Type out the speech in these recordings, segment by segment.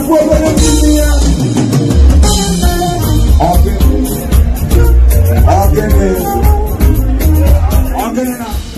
pueblo de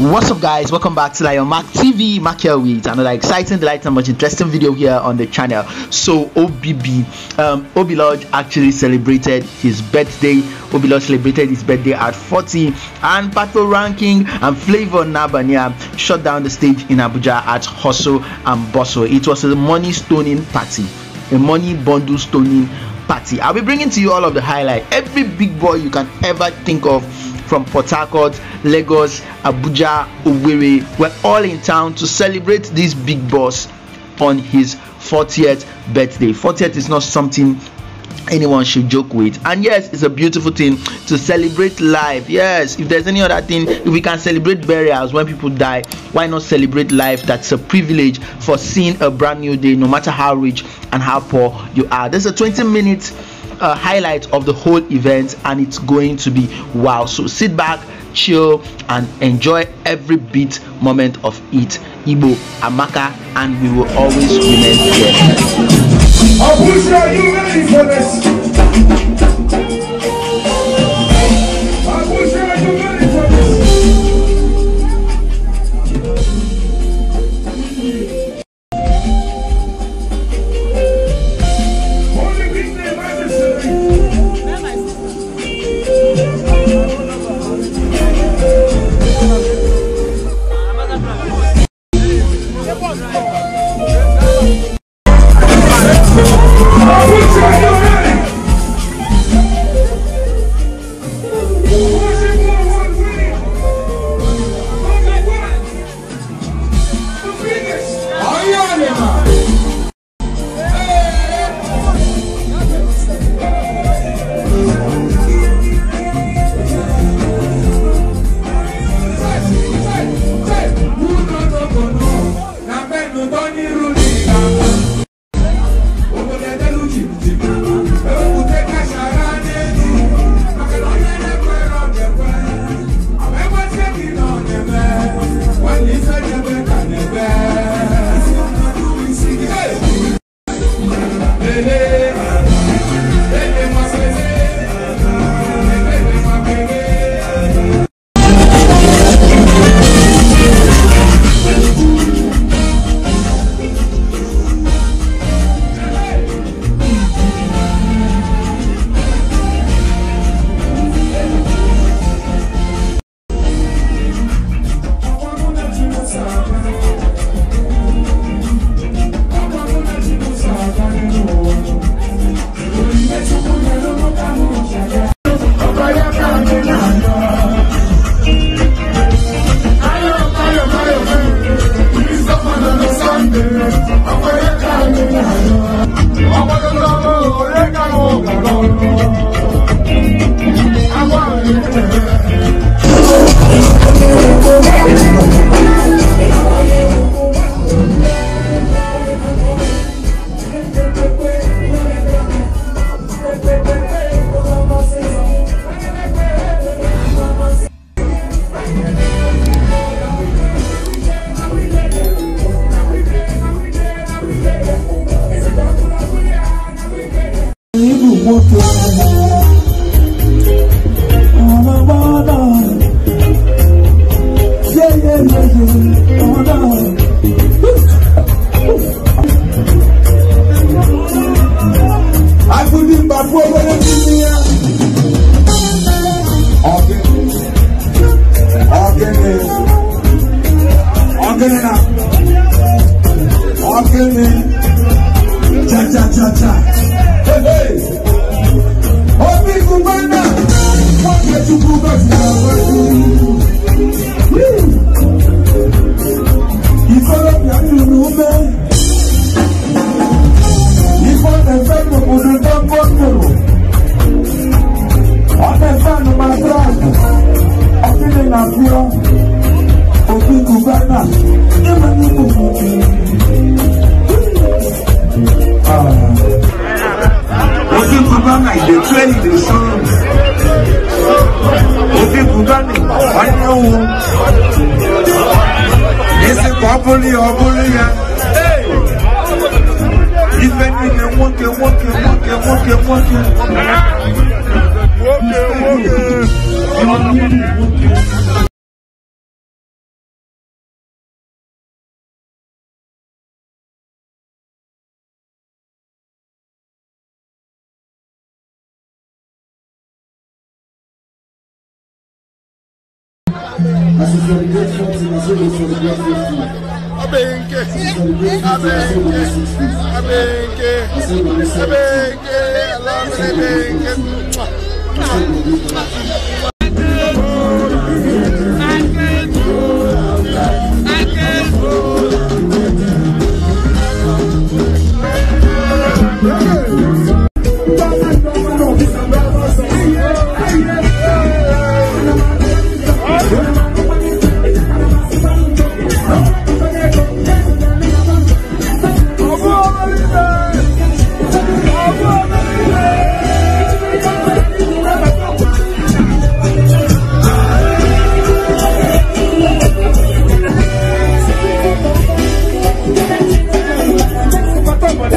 What's up guys, welcome back to Lion Mac TV, Mac here with another exciting, delight and much interesting video here on the channel. So OBB, um, Obi Lodge actually celebrated his birthday Obilor celebrated his birthday at 40 and Pato Ranking and Flavor Nabania shut down the stage in Abuja at Hustle and Bustle. It was a money stoning party a money bundle stoning party. I'll be bringing to you all of the highlight, every big boy you can ever think of from Port Harcourt, Lagos, Abuja, Owerri. We're all in town to celebrate this big boss on his 40th birthday. 40th is not something anyone should joke with and yes it's a beautiful thing to celebrate life yes if there's any other thing if we can celebrate burials when people die why not celebrate life that's a privilege for seeing a brand new day no matter how rich and how poor you are there's a 20 minute uh, highlight of the whole event and it's going to be wow so sit back chill and enjoy every beat moment of it Ibo amaka and we will always remain here Abuja, are you ready for this? tudo as woke, woke. I should celebrate something, I should celebrate 50 abenke abenke abenke abenke alamre benke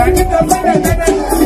I Thank you.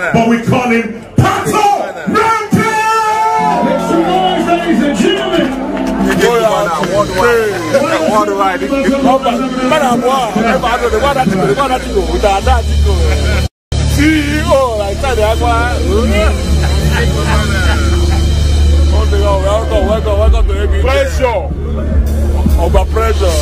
but we call him Pato Make some noise, ladies and gentlemen. Worldwide, worldwide. Madam, wow, oh, I don't know what I do, what I do, what I do. CEO, like that, that's why. Welcome, welcome, welcome to ABK. Pressure. Over pressure.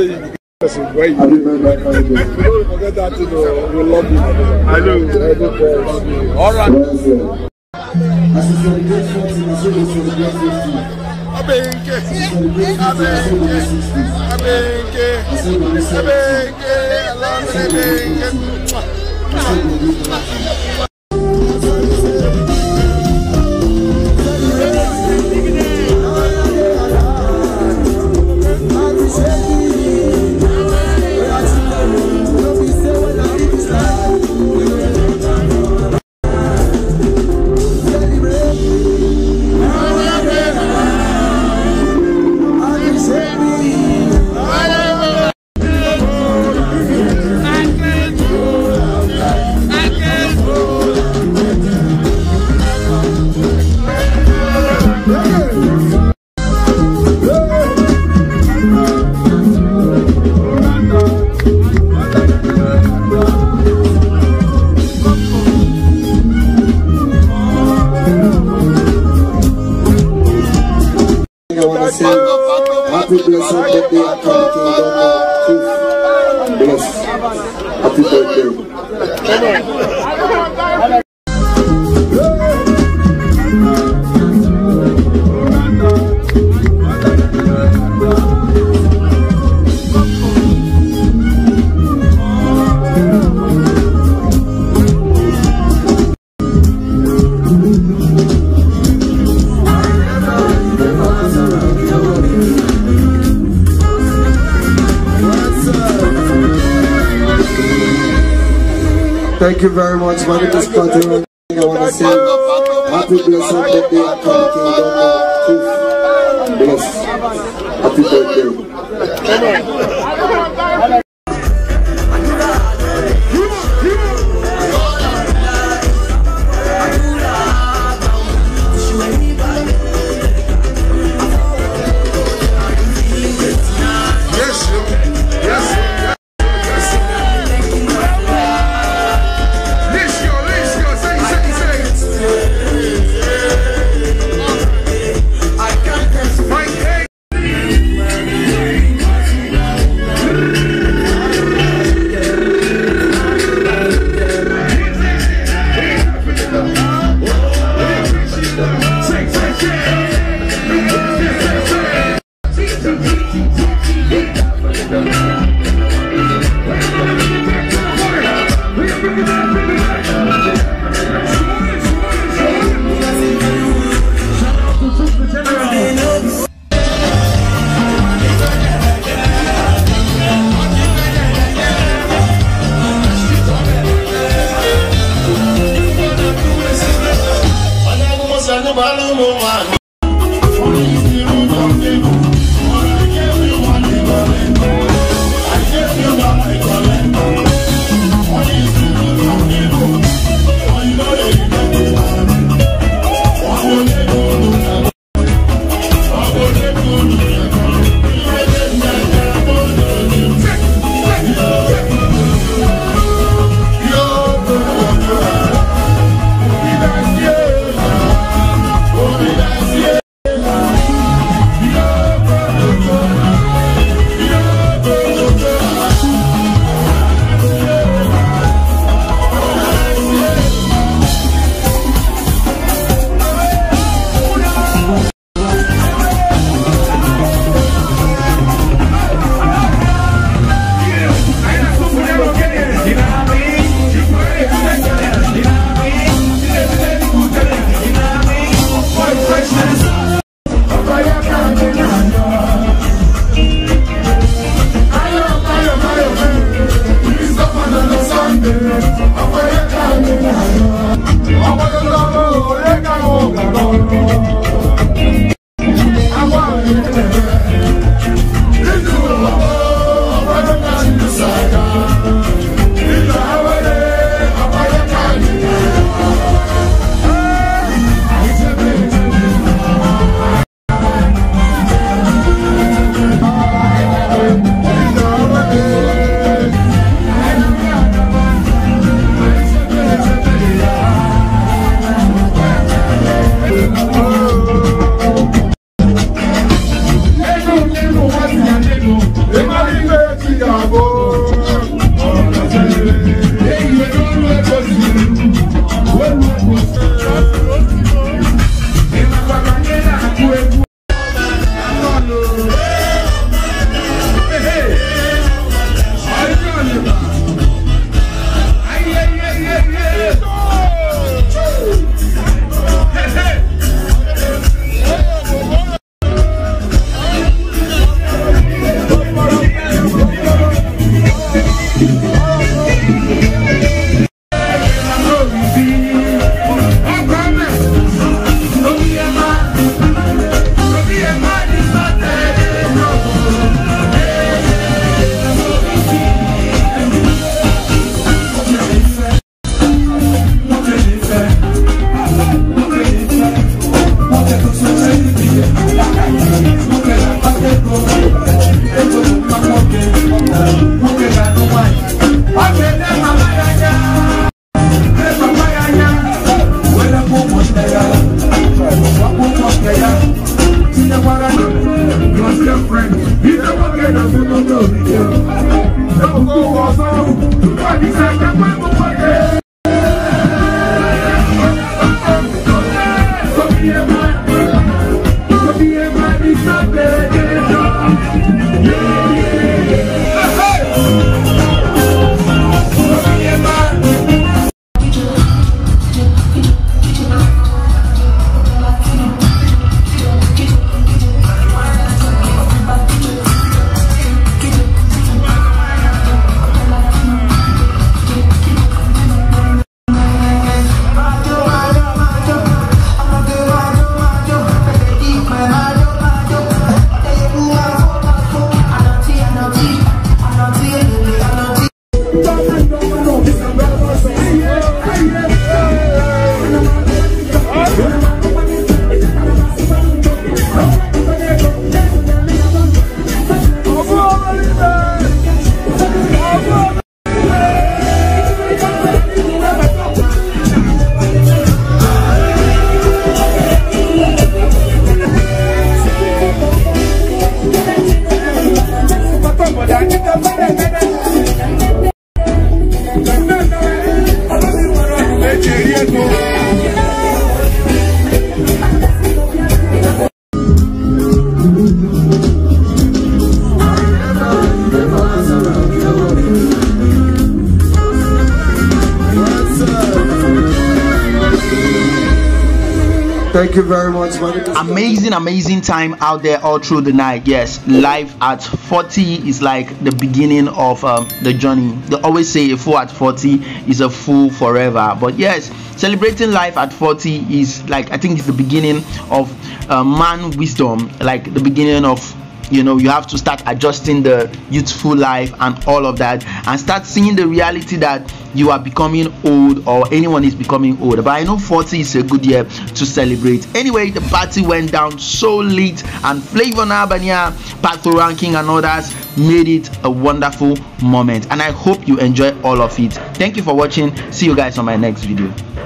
say you be person you dey. Don't forget that you. o, we love you. I know. I know God love you. All right. As you celebrate forty, na so you celebrate fifty. Abenke, Abenke, Abenke, Abenke, Abenke. Thank you very much. My name is Patrick. I want to say happy blessed birthday at the Kingdom of Bless. Happy birthday. Àwọn ọ̀rẹ́ kan ò gbàgbọ́. Àwọn ọ̀rẹ́ kan ò gbàgbọ́. Thank you very much. Amazing, amazing time out there all through the night. Yes, life at 40 is like the beginning of um, the journey. They always say a fool at 40 is a fool forever. But yes, celebrating life at 40 is like I think it's the beginning of uh, man wisdom, like the beginning of you know you have to start adjusting the youthful life and all of that and start seeing the reality that you are becoming old or anyone is becoming old but i know 40 is a good year to celebrate anyway the party went down so late and flavor albania pato ranking and others made it a wonderful moment and i hope you enjoy all of it thank you for watching see you guys on my next video